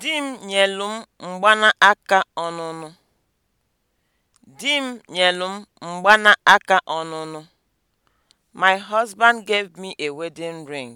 Di m nyelu m aka ọnụnụ. Di m m ọnụnụ. My husband gave me a wedding ring.